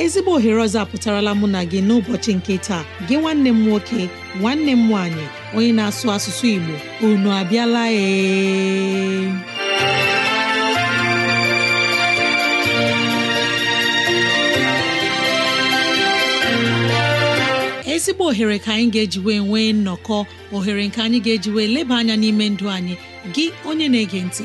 ezigbo ohere ọzọ apụtarala mụ na gị n'ụbọchị nke taa gị nwanne m nwoke nwanne m nwaanyị onye na-asụ asụsụ Igbo unu abịala ee ezigbo ohere ka anyị ga-ejiwe nwee nnọkọ ohere nke anyị ga-ejiwe leba anya n'ime ndụ anyị gị onye na-ege ntị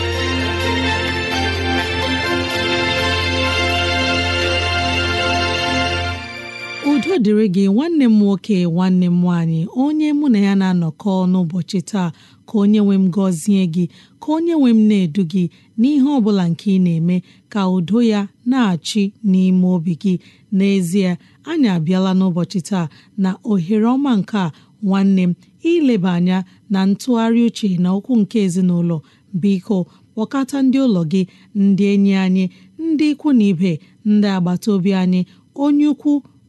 dịrị gị nwanne m nwoke nwanne m nwaanyị onye mụ na ya na-anọkọ n'ụbọchị taa ka onye nwe m gọzie gị ka onye nwe m na-edu gị n'ihe ọ bụla nke ị na-eme ka udo ya na-achị n'ime obi gị n'ezie anyị abịala n'ụbọchị taa na ohere ọma nke a nwanne m ileba anya na ntụgharị uche na okwu nke ezinụlọ biko kpọkọta ndị ụlọ gị ndị enyi anyị ndị ikwu na ibe ndị agbata obi anyị onye ukwu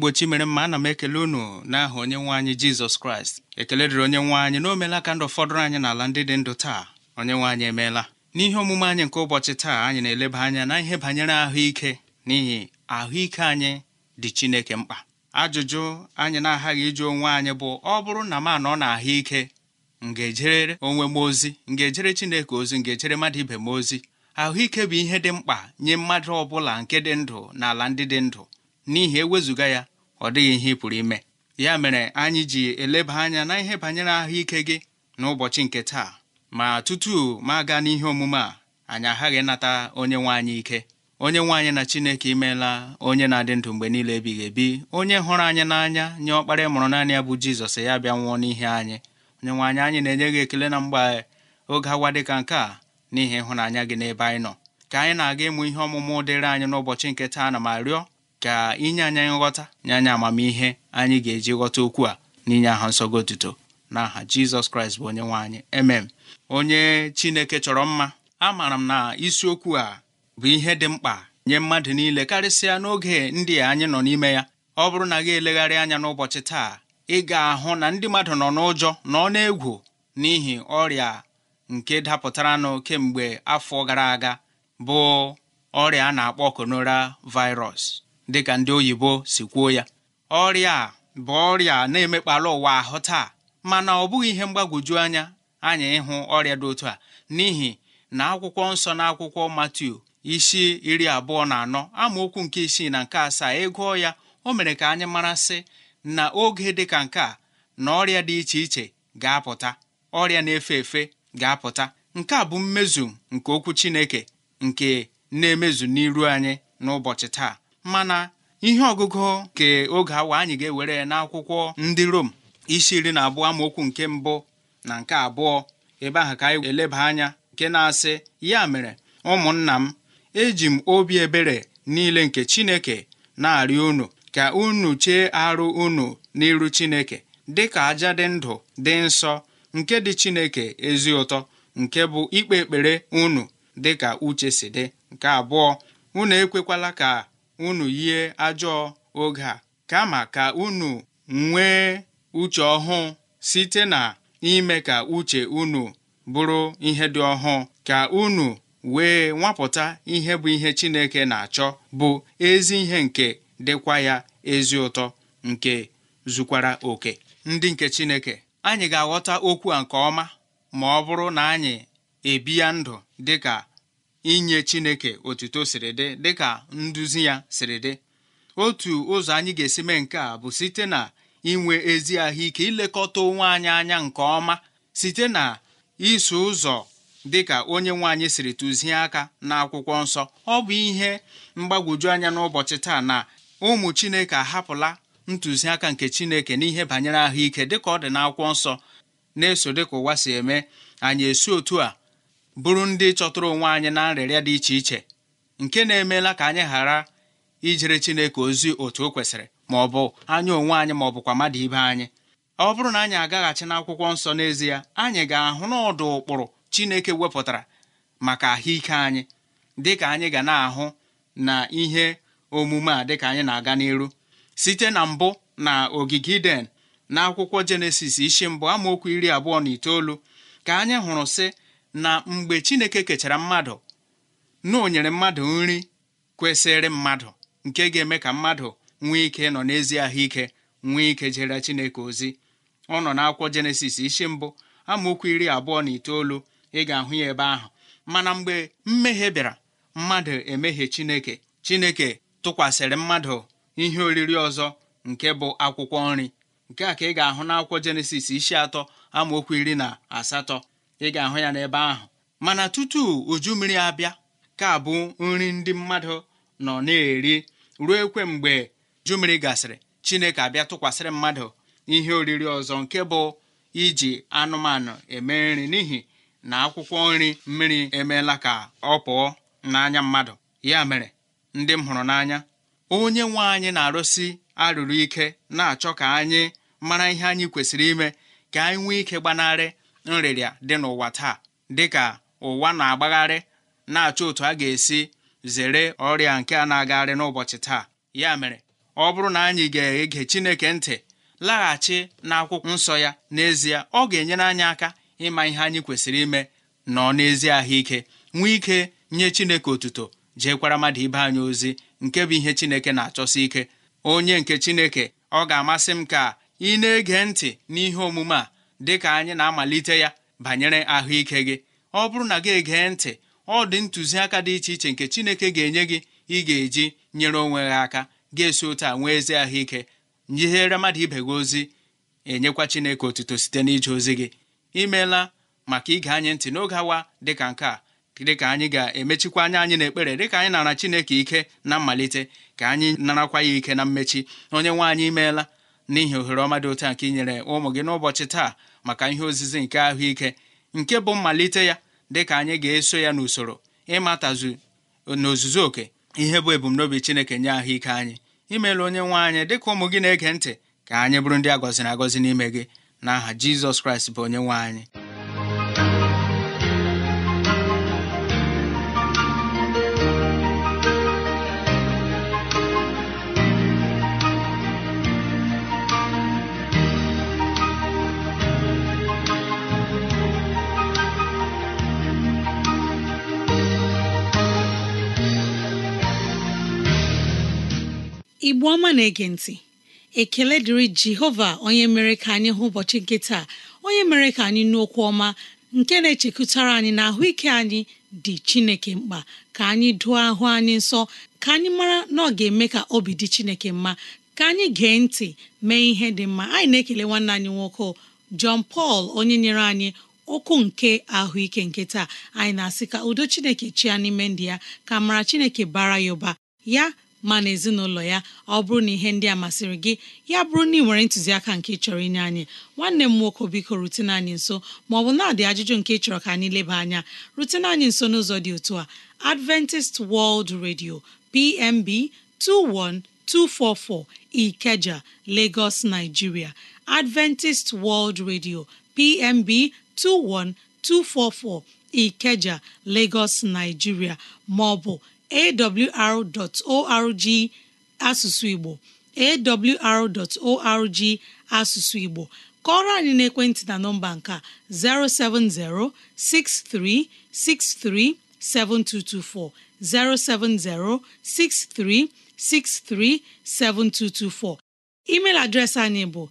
igbo chimere mma ana m ekele unu n'aha onye nwe anyị jizọs kraịst ekele dịrị onye nwe anyị na meela ka ndụ fọdụrụ anyị n'ala ndị dị ndụ taa onye nwe anyị emeela n'ihe omume anyị nke ụbọchị taa anyị na-eleba anya na ihe banyere ahụike n'ihi ahụike anyị dị chineke mkpa ajụjụ anyị na-aghaghị ịjụ onwe anyị bụ ọ bụrụ na m anọ na ahụike m ga-ejere onwe m ozi m ga-ejere chineke ozi m ga-ejere mmadụ ibe m ozi ahụike bụ ihe dị mkpa nye mmadụ ọ bụla nke dị ndụ na ala ndị dị ndụ n'ihi ewezụga ya ọ dịghị ihe ị pụrụ ime ya mere anyị ji eleba anya na ihe banyere ahụike gị n'ụbọchị nke taa ma tutu ma aga n'ihe omume a anyị aghaghị ịnata onye nwe anyị ike onye nwe anyị na chineke imeela onye na-adị ndụ mgbe niile ebighị ebi onye hụrụ anyị n'anya nye ọkpara mụrụ naanị ya bụ jizọs ya bịa nwụọ n'ihe anyị onye nwe anyị anyị na-enye gị ekele na mgbe oge awa dịka nke a n'ihi ịhụnanya gị n'ebe anyị nọ ka anyị na-aga ịmụ ihe ọmụmụ dịrị anyị n'ụbọchị nke taa na ma rịọ ka inye anyị nghọta nye anyị amamihe anyị ga-eji ghọta okwu a n'inye aha nsọgo otuto n'aha Jizọs Kraịst bụ onye nwe anyị emem onye Chineke chọrọ mma amaara m na isiokwu a bụ ihe dị mkpa nye mmadụ niile karịsịa n'oge ndị anyị nọ n'ime ya ọ bụrụ na gị elegharị anya n'ụbọchị taa ị ga-ahụ na ndị mmadụ nọ n'ụjọ nọ n'egwu n'ihi ọrịa nke dapụtaranụ kemgbe afọ gara aga bụ ọrịa a na-akpọ konora virus dịka ndị oyibo si kwuo ya ọrịa a bụ ọrịa na emekpalụ ụwa ahụ taa mana ọ bụghị ihe mgbagwoju anya anyị ịhụ ọrịa dị otu a n'ihi na akwụkwọ nsọ na akwụkwọ Matiu isi iri abụọ na anọ amaokwu nke isii na nke asaa ịgụọ e ya o mere ka anyị mara sị na oge dị ka nke a na ọrịa dị iche iche ga-apụta ọrịa na-efe efe ga-apụta nke a bụ mmezu nke okwu Chineke nke na-emezu n'iru anyị n'ụbọchị taa mana ihe ọgụgụ nke oge awa anyị ga-ewere n'akwụkwọ ndị Rom isi iri na abụọ amaokwu nke mbụ na nke abụọ ebe ahụ ka anyị eleba anya nke na-asị ya mere ụmụnna m eji m obi ebere niile nke Chineke na-arịọ unu ka unu chee arụ unu n'iru Chineke dị ka aja dị ndụ dị nsọ nke dị Chineke ezi ụtọ nke bụ ikpe ekpere unu dịka uche si dị nke abụọ unu ekwekwala ka unu yie ajọ oge a kama ka unu nwee uche ọhụụ site na ime ka uche unu bụrụ ihe dị ọhụụ ka unu wee nwapụta ihe bụ ihe Chineke na-achọ bụ ezi ihe nke dịkwa ya ezi ụtọ nke zukwara oke ndị nke Chineke anyị ga-aghọta okwu a nke ọma ma ọ bụrụ na anyị ebi ya ndụ dịka inye chineke otuto siri dị dịka nduzi ya siri dị otu ụzọ anyị ga-esi mee nke a bụ site na inwe ezi ahụike ilekọta onwe anyị anya nke ọma site na iso ụzọ dịka onye nwe anyị siri tụzie aka n'akwụkwọ nsọ ọ bụ ihe mgbagwoju anya n'ụbọchị taa na ụmụ chineke ahapụla ntụziaka nke chineke n'ihe banyere ahụike dịka ọ dị n'akwụkwọ nsọ na-eso dịka ụwa si eme anyị esi otu a bụrụ ndị chọtụrụ onwe anyị na nrịrịa dị iche iche nke na-emeela ka anyị ghara ijere Chineke ozi otu o kwesịrị ma ọ bụ anya onwe anyị ma ọ bụkwa mmadụ ibe anyị ọ bụrụ na anyị agaghachi akwụkwọ nsọ n'ezie anyị ga-ahụ n'ọdụ ụkpụrụ Chineke wepụtara maka ahụike anyị dịka anyị ga na-ahụ na ihe omume a dịka anyị na-aga n'iru site na mbụ na ogige Iden na akwụkwọ Jenesis isi mbụ amaokwu iri abụọ na itoolu ka anyị hụrụ sị na mgbe Chineke kechara mmadụ na o nyere mmadụ nri kwesịrị mmadụ nke ga-eme ka mmadụ nwee ike nọ n'ezi ahụike nwee ike jere Chineke ozi ọ nọ n'akwụkwọ Jenesis isi mbụ amaokwu iri abụọ na itoolu ị ga-ahụ ya ebe ahụ mana mgbe mmehie bịara mmadụ emehie Chineke Chineke tụkwasịrị mmadụ ihe oriri ọzọ nke bụ akwụkwọ nri nke a ka ị ga-ahụ n'akwụkwọ Jenesis isi atọ amaokwu iri na asatọ ị ga-ahụ ya n'ebe ahụ mana tutu uju mmiri abịa ka bụ nri ndị mmadụ nọ na-eri ruo ekwe mgbe uju mmiri gasịrị chineke abịa tụkwasịrị mmadụ ihe oriri ọzọ nke bụ iji anụmanụ eme nri n'ihi na akwụkwọ nri mmiri emeela ka ọ pụọ n'anya mmadụ ya mere ndị m hụrụ n'anya onye nwe anyị na-arụsi arụrụ ike na-achọ ka anyị mara ihe anyị kwesịrị ime ka anyị nwee ike gbanarị nrịrịa dị n'ụwa taa dịka ụwa na-agbagharị na-achọ otu a ga-esi zere ọrịa nke a na-agagharị n'ụbọchị taa ya mere ọ bụrụ na anyị ga-ege Chineke ntị laghachi n'akwụkwọ nsọ ya n'ezie ọ ga-enyere anyị aka ịma ihe anyị kwesịrị ime nọ n'ezie ahụike nwee ike nye Chineke otuto jeekwara mmadụ ibe anyị ozi nke bụ ihe Chineke na-achọsi ike onye nke Chineke ọ ga-amasị m ka ị na-ege ntị n'ihe omume a dịka anyị na-amalite ya banyere ahụike gị ọ bụrụ na gị egee ntị ọ dị ntụziaka dị iche iche nke Chineke ga-enye gị ị ga-eji nyere onwe gị aka ga-esi otu a nwee ezi ahụike nyihere mmadụ ibe gị ozi enyekwa Chineke otuto site n'ije ozi gị imeela maka ige anyị ntị n'oge awa dịka nke a dịka anyị ga-emechikwa anya anyị n'ekpere dịka anyị nara Chineke ike na mmalite ka anyị narakwa ya ike na mmechi onye nwe anyị imeela n'ihi ohere ọma dị otu nke inyere ụmụ gị n'ụbọchị taa maka ihe ozizi nke ahụike nke bụ mmalite ya dịka anyị ga-eso ya n'usoro ịmatazu n'ozuzu oke ihe bụ ebumnobi Chineke nye ahụike anyị imeela onye nwe anyị dịka ụmụ gị na-ege ntị ka anyị bụrụ ndị agọziri na agọzi n'ime gị n'aha Jizọs Kraịst bụ onye nwe anyị igbo ọma na-ege ntị ekele dịrị jehova onye mere ka anyị hụ ụbọchị nke taa onye mere ka anyị okwu ọma nke na-echekwutara anyị na ahụike anyị dị chineke mkpa ka anyị dụọ ahụ anyị nsọ ka anyị mara na ọ ga-eme ka obi dị chineke mma ka anyị gee ntị mee ihe dị mma anyị na-ekele nwanne anyị nwoke John pal onye nyere anyị okwu nke ahụike nke taa anyị na-asị ka udo chineke chia n'ime ndị ya ka mara chineke bara ya ụba ya ma na ezinụlọ ya ọ bụrụ na ihe ndị a masịrị gị ya bụrụ na ị nwere ntụziaka nke chọrọ inye anyị nwanne m nwoke biko rutene anyị nso ma maọbụ na-adị ajụjụ nke chọrọ ka anyị leba anya rutene anyị nso n'ụzọ dị otu a Adventist World Radio PMB 21244 Ikeja Lagos Nigeria Adventist World Radio PMB 21244 Ikeja Lagos Nigeria maọbụ awrorg asụsụ igbo awrorg asụsụ igbo kọọrọ anyị n'ekwentị na nọmba nka 070 -6363 -7224. 070 -6363 -7224. 7224 email adreesị anyị bụ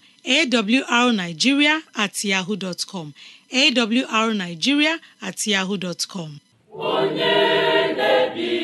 arigiria atyahu com arigiria onye na-ebi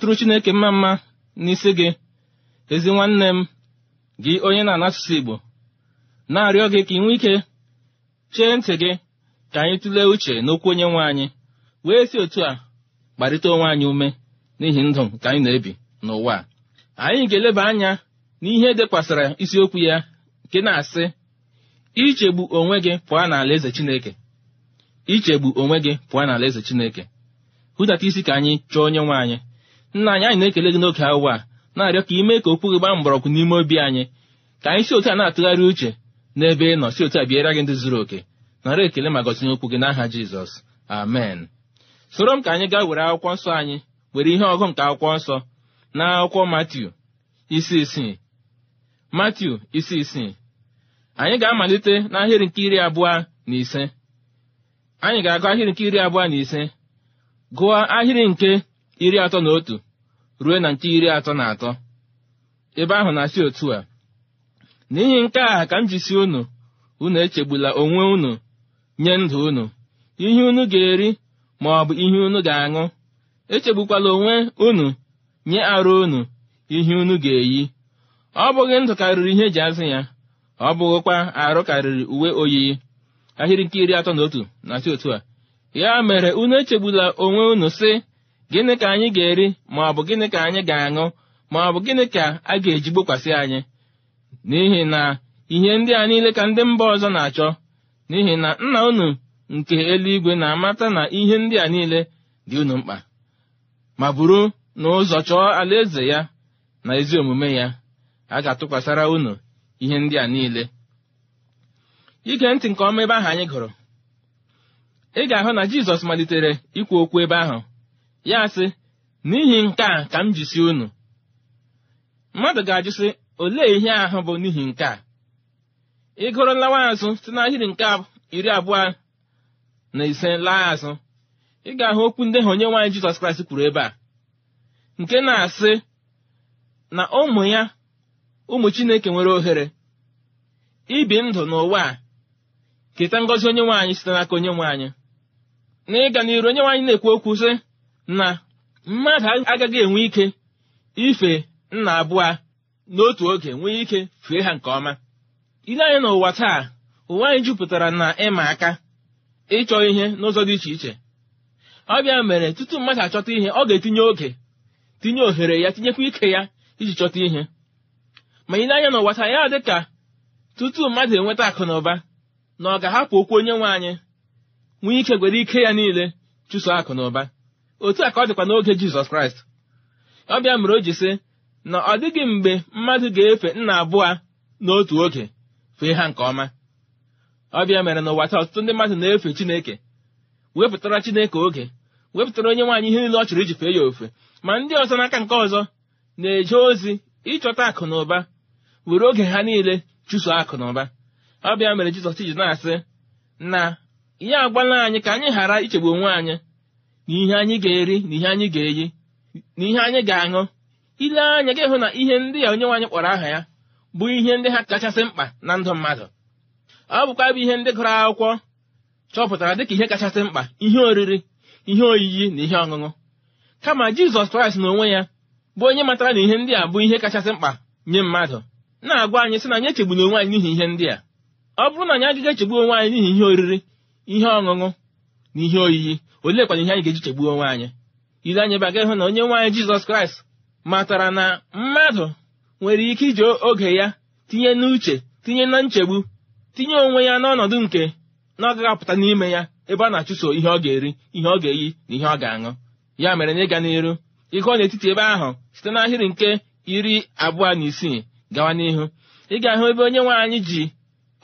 na-atụrụ chineke mma mma n'isi gị ezi nwanne m gị onye na-ana asụsụ igbo na-arịọ gị ka ị nwee ike chee ntị gị ka anyị tụlee uche n'okwu onye nwe anyị wee si otu a kparịta onwe anyị ume n'ihi ndụ nke anyị na-ebi n'ụwa a anyị ga-eleba anya n'ihe dekwasara isiokwu ya nke na-asị ichegbu onwe gị pụọ n'ala eze chineke ichegbu onwe gị pụọ n'ala eze chineke hụdata isi ka anyị chọọ onye nwe anyị nna anyị anyị na-ekele gị n'oge awa a na-arịọ ka ime ka okwu gị gbaa mgbọrọgwụ n'ime obi anyị ka anyị si otu a na-atụgharị uche n'ebe ị nọ si otu a bịara gị ndị zuru oke nara ekele ma gọzie okwu gị n'aha jizọs amen soro m ka anyị gaa were akwụkwọ nsọ anyị were ihe ọgụ nke akwụkwọ nsọ na akwụkwọ matiu isi isii matiu isi isii anyị ga-amalite n'ahịrị nke iri abụọ na ise anyị ga-agụ ahịrị nke iri abụọ na ise gụọ ahịrị nke iri atọ na otu ruo na nke iri atọ na atọ ebe ahụ na-asị otu a n'ihi nke a ka m jisi unu unu echegbula onwe unu nye ndụ unu ihe unu ga-eri ma ọ bụ ihe unu ga-aṅụ echegbukwala onwe unu nye arụ unu ihe unu ga-eyi ọ bụghị ndụ karịrị ihe eji azụ ya ọ bụghịkwa arụ karịrị uwe oyiyi ahịrị nke iri atọ na otu na-asị otu a ya mere unu echegbula onwe unu sị gịnị ka anyị ga-eri ma ọ bụ gịnị ka anyị ga-aṅụ ma ọ bụ gịnị ka a ga-eji gbokwasị anyị n'ihi na ihe ndị a niile ka ndị mba ọzọ na-achọ n'ihi na nna unu nke eluigwe na-amata na ihe ndị a niile dị unu mkpa ma bụrụ na ụzọ chọọ alaeze ya na ezi omume ya a ga-atụkwasịra unu ihe ndị a niile ige ntị nke ọma ebe ahụ anyị gụrụ ị ga-ahụ na jizọs malitere ikwu okwu ebe ahụ ya sị n'ihi nke a ka m jisi unu mmadụ ga-ajụ sị olee ihe ahụ bụ n'ihi nke a ị lawa azụ site n'ahịrị nke iri abụọ na ise laa azụ ị ga-ahụ okwu ndị ha onye nwaanyị Jizọs Kraịst kwuru ebe a nke na-asị na ụmụ ya ụmụ Chineke nwere ohere ibi ndụ n'ụwa a keta ngọzi onye nwaanyị site n'aka onye nwaanyị na ịga n'iru onye nwaanyị na-ekwu okwu sị na mmadụ agaghị enwe ike ife nna abụọ n'otu oge nwee ike fee ha nke ọma ile anyị n'ụwa taa ụwa anyị jupụtara na ịma aka ịchọ ihe n'ụzọ dị iche iche ọ bịa mere tutu mmadụ achọta ihe ọ ga-etinye oge tinye ohere ya tinyekwa ike ya iji chọta ihe ma ile anya n'ụwa taa ya dị ka tutu mmadụ enweta akụ na ụba na ọ ga-ahapụ okwu onye nwe anyị nwee ike gwere ike ya niile chụso akụ na ụba otu a ka ọ dịkwa n'oge jizọs kraịst ọ bịa mere o ji sị na ọ dịghị mgbe mmadụ ga-efe nna abụọ n'otu oge fee ha nke ọma ọ bịa mere n'ụwa taa ọtụtụ ndị mmadụ na-efe chineke wepụtara chineke oge wepụtara onye nwaanyị ihe niile ọ chọrọ iji fee ya ofe ma ndị ọzọ n'aka nke ọzọ na-eje ozi ịchọta akụ na ụba were oge ha niile chụso akụ na ụba ọ bịa mere jizọs ji na-asị na ya agbalị anyị ka anyị ghara ichegbu onwe anyị n'ihe anyị ga-eri na ihe anyị ga-eyi na ihe anyị ga-aṅụ ile anya gị hụ na ihe ndị a onye nwaanyị kpọrọ aha ya bụ ihe ndị ha kachasị mkpa na ndụ mmadụ ọ bụkwa bụ ihe ndị gụrụ akwụkwọ chọpụtara dịka ihe kachasị mkpa ihe oriri ihe oyiyi na ihe ọṅụṅụ kama jizọs kraịst n'onwe ya bụ onye matara na ihe ndị a bụ ihe kachasị mkpa nye mmadụ na-agwa anyị sị na anyị echegbuna onwe anyị n'ihi ihe ndị a ọ bụrụ na anyị agaghị echegbu onwe anyị n'ihi ihe oriri ihe ọṅụṅụ na ihe oyiyi oleekwana ihe anyị ga-eji chegbuo onwe anyị ile anyị baga ịhụ na onye nwaanyị anyị jizọs kraịst matara na mmadụ nwere ike iji oge ya tinye n'uche tinye na nchegbu tinye onwe ya n'ọnọdụ nke na ọ apụta n'ime ya ebe ọ na-achụso ihe ọ ga-eri ihe ọ ga-eyi na ihe ọ ga-aṅụ ya mere na ịga n'iru ịgụọ n'etiti ebe ahụ site n'ahịrị nke iri abụọ na isii gawa n'ihu ị ga-ahụ ebe onye nwaanyị ji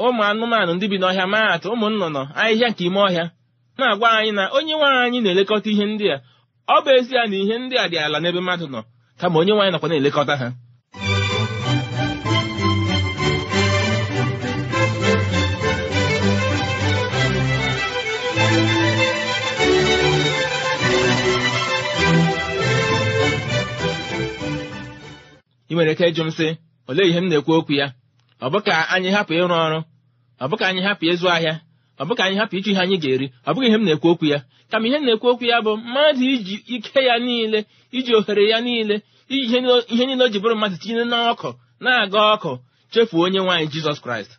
ụmụ anụmanụ ndị bi n'ọhịa maatụ ụmụ nnụnụ ahịhịa nke ime ọhịa na-agwa anyị na onye nwanyị anyị na-elekọta ihe ndị a ọ bụ ezie na ihe ndị a dị ala n'ebe mmadụ nọ kama onye nwanyị nakwa na-elekọta ha ị nwere ike ịjụ m sị olee ihe m na-ekwu okwu ya ọ bụ ka anyị hapụ ịrụ ọrụ ọ bụ ka anyị hapụ ịzụ ahịa ọ bụ ka anyị hapụ ịchọ ihe anyị ga-eri ọ bụghị ihe m na-ekwu okwu ya kama ihe m na-ekwu okwu ya bụ mmadụ iji ike ya niile iji ohere ya niile iji ihe niile o ji bụrụ mmadụ tinye n'ọkụ na-aga ọkụ chefuo onye nwaanyị jizọs kraịst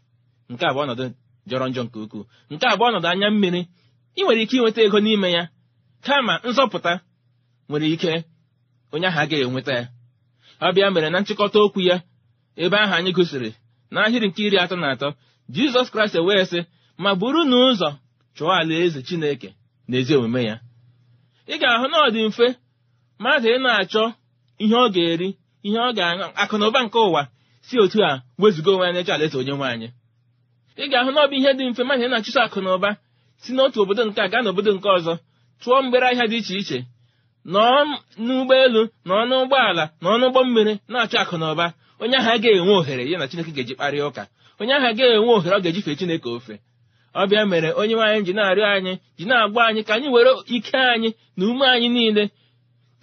nke abụọ ọnọdụ jọrọ njọ nke ukwuu nke abụọ nọdụ ọnọdụ anya mmiri ị nwere ike inweta ego n'ime ya kama nzọpụta nwere ike onye ahụ agaghị enweta ya ọ bịa mere na nchịkọta okwu ya ebe ahụ anyị gụsiri n'ahịrị nke iri atọ na atọ jizọs kraịst ewee sị ma buru na ụzọ chụọ alaeze chineke na ezi omume ya ị ga-ahụ na ọ dị mfe mmadụ ị na-achọ ihe ọ ga-eri ihe ọ ga-aṅụ akụnụba nke ụwa si otu a wezụga onwe anyị chọ alaeze onye nwaanyị ị ga-ahụ na ọ bụ ihe dị mfe mmadụ ị na-achụso akụnụba si n'otu obodo nke a gaa n'obodo nke ọzọ tụọ mgbere ahịa dị iche iche nọọ n'ụgbọelu nọọ n'ụgbọala nọọ n'ụgbọ mmiri na-achọ akụnụba onye ahụ ga enwe ohere ya na chineke ga-eji kparịa ụka onye ahụ agaghị enwe ohere ọ ga-eji fee chineke ofe ọbịa mere onye nwaanyị ji na-arịọ anyị ji na-agba anyị ka anyị were ike anyị na ume anyị niile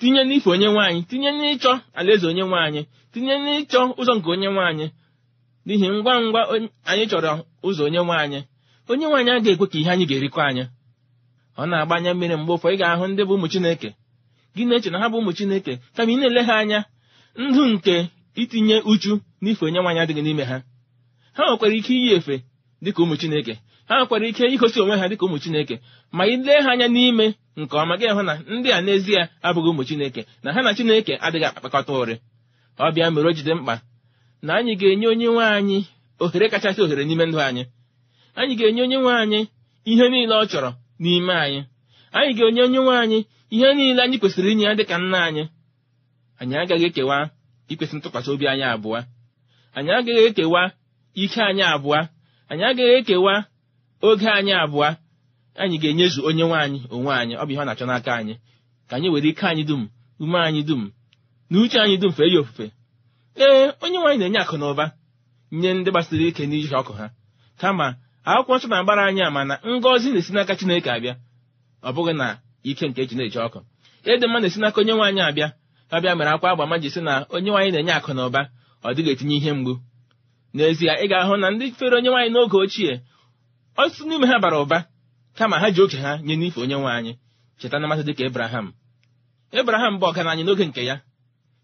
tinye n'ife onye nwaanyị tinye n'ịchọ alaeze onye nwaanyị tinye n'ịchọ ụzọ nke onye nwaanyị n'ihi ngwa ngwa anyị chọrọ ụzọ onye nwaanyị onye nwaanyị a ga-ekwe ka ihe anyị ga-erikọ anya ọ na agba anya mmiri mgbe ụfọ ị ga-ahụ ndị bụ ụmụ Chineke gị na-eche na ha bụ ụmụ Chineke kama ị na-ele ha anya ndụ nke itinye uchu n'ife onye nwaanyị adịghị n'ime ha ha nwekwara ike iyi efe dịka ụmụ Chineke ha nwekwara ike igosi onwe ha dịka ụmụ chineke ma ị lee ha anya n'ime nke ọma gị hụ na ndị a n'ezie abụghị ụmụ chineke na ha na chineke adịghị akpakọta ụrị ọ bịa mere o jide mkpa na anyị ga-enye onye nwe anyị ohere kachasị ohere n'ime ndụ anyị anyị ga-enye onye nwe anyị ihe niile ọ chọrọ n'ime anyị anyị ga-enye onye nwe anyị ihe niile anyị kwesịrị inye ya dịka nna anyị anyị agaghị ekewa ikwesị ntụkwasị obi anyị abụọ anyị agaghị ekewa ike anyị abụọ anyị agaghị ekewa oge anyị abụọ anyị ga-enyezu onye nwaanyị onwe anyị ọ bụ ihe ọ na-achọ n'aka anyị ka anyị were ike anyị dum ume anyị dum na uche anyị dum fee ya ofufe ee onye nwaanyị na-enye akụ na ụba nye ndị gbasiri ike n'iji ọkụ ha kama akwụkwọ nsọ na-agbara anyị ama na ngọzi na-esi n'aka Chineke abịa ọ bụghị na ike nke eji na-eji ọkụ ịdị mma na-esi n'aka onye nwaanyị abịa ọbịa mere akwa agba ma ji sị na onye nwaanyị na-enye akụ na ụba ọ dịghị etinye ihe mgbu n'ezie ị ga-ahụ na ndị fere onye nwaanyị n'oge ochie ọtụtụ n'ime ha bara ụba kama ha ji oke ha nye n'ife onye nwe anyị cheta na mmasị dịka ebraham ebraham bụ ọgaranya n'oge nke ya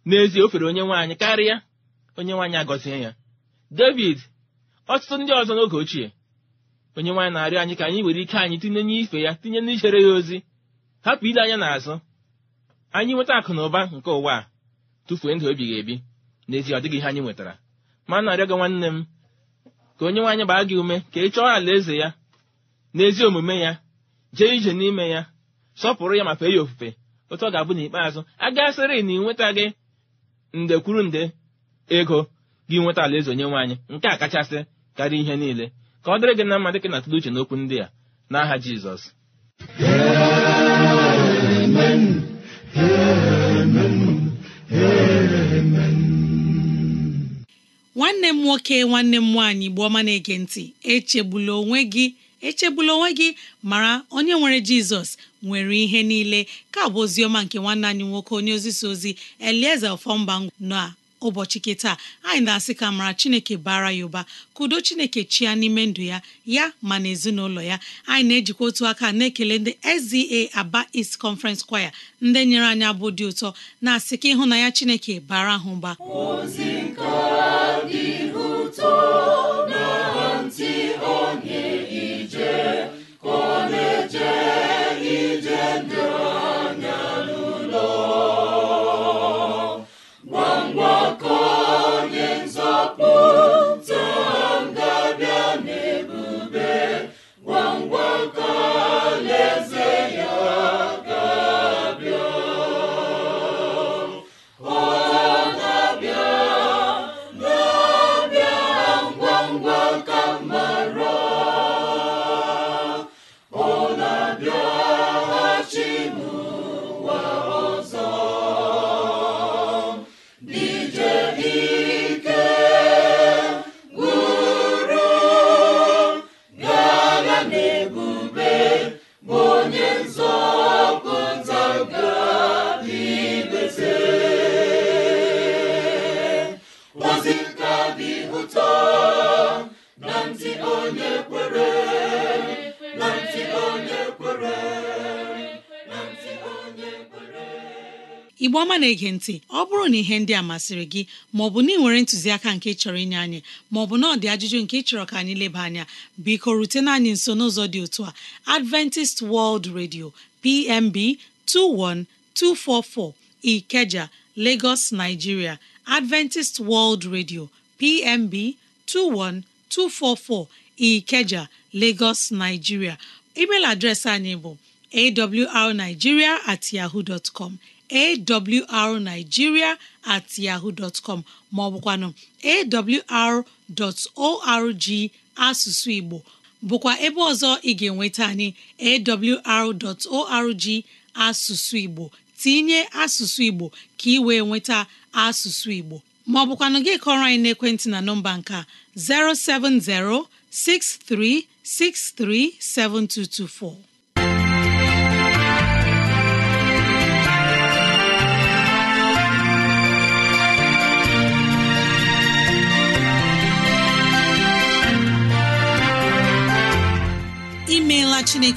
n'ezie o fere onye nwe anyị karịa onye nwe anyị agọzie ya david ọtụtụ ndị ọzọ n'oge ochie onye nwaanyị na-arịọ anyị ka anyị were ike anyị tinye n'ife ya tinye n'ichere ya ozi hapụ ile anya n'azụ anyị nweta akụ na ụba nke ụwa a tụfuo ndụ ebighị ebi n'ezie ọ dịghị ihe anyị nwetara ma na-arịọ nwanne m ka onye nwaanyị gbaa gị ume ka ị chọọ alaeze ya na ezi omume ya jee ije n'ime ya sọpụrụ ya ma eyi ofufe otu ọ ga-abụ n'ikpeazụ agasịrị na ịnweta gị nde kwuru nde ego gị nweta alaeze onye nwaanyị nke a kachasị karịa ihe niile ka ọ dịrị gị na mma dịka na-atụle uche n'okwu ndị a n'aha Jizọs nwanne m nwoke nwanne m nwaanyị bụ ọma na-ege ntị echegbula onwe gị echegbula onwe gị mara onye nwere jizọs nwere ihe niile ka bụ oziọma nke nwanne anyị nwoke onye ozisa ozi elieze ọfọmba na ụbọchị kịta anyị na-asị ka mara chineke bara ya ụba chineke chia n'ime ndụ ya ya ma na ezinụlọ ya anyị na-ejikwa otu aka na-ekele ndị SZA Aba East Conference Choir ndị nyere anyị abụ dị ụtọ na-asị ka ya chineke bara ha ụba na-ege ntị ọ bụrụ na ihe ndị a masịrị gị maọbụ na ị nwere ntụziaka nke chọrọ inye anyị maọbụ na ọ dị ajụjụ nke chọrọ ka anyị leba anya biko rutena anyị nso n'ụzọ dị otu a Adventist World Radio PMB 21244 Ikeja Lagos Nigeria Adventist World Radio PMB 21244 Ikeja Lagos Nigeria email adreesị anyị bụ awrnigeria at yahoo dot com awrnigeria at yahoo dot com maọbụkwanụ awr.org asụsụ Igbo bụkwa ebe ọzọ ị ga-enweta anyị awr.org asụsụ Igbo tinye asụsụ Igbo ka ị wee nweta asụsụ Igbo maọbụkwanụ gị kọrọ anyị n'ekwentị na nọmba nke 070 6363 7224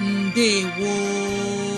ndewo